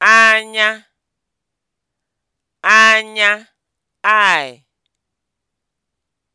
anya anya anya ai.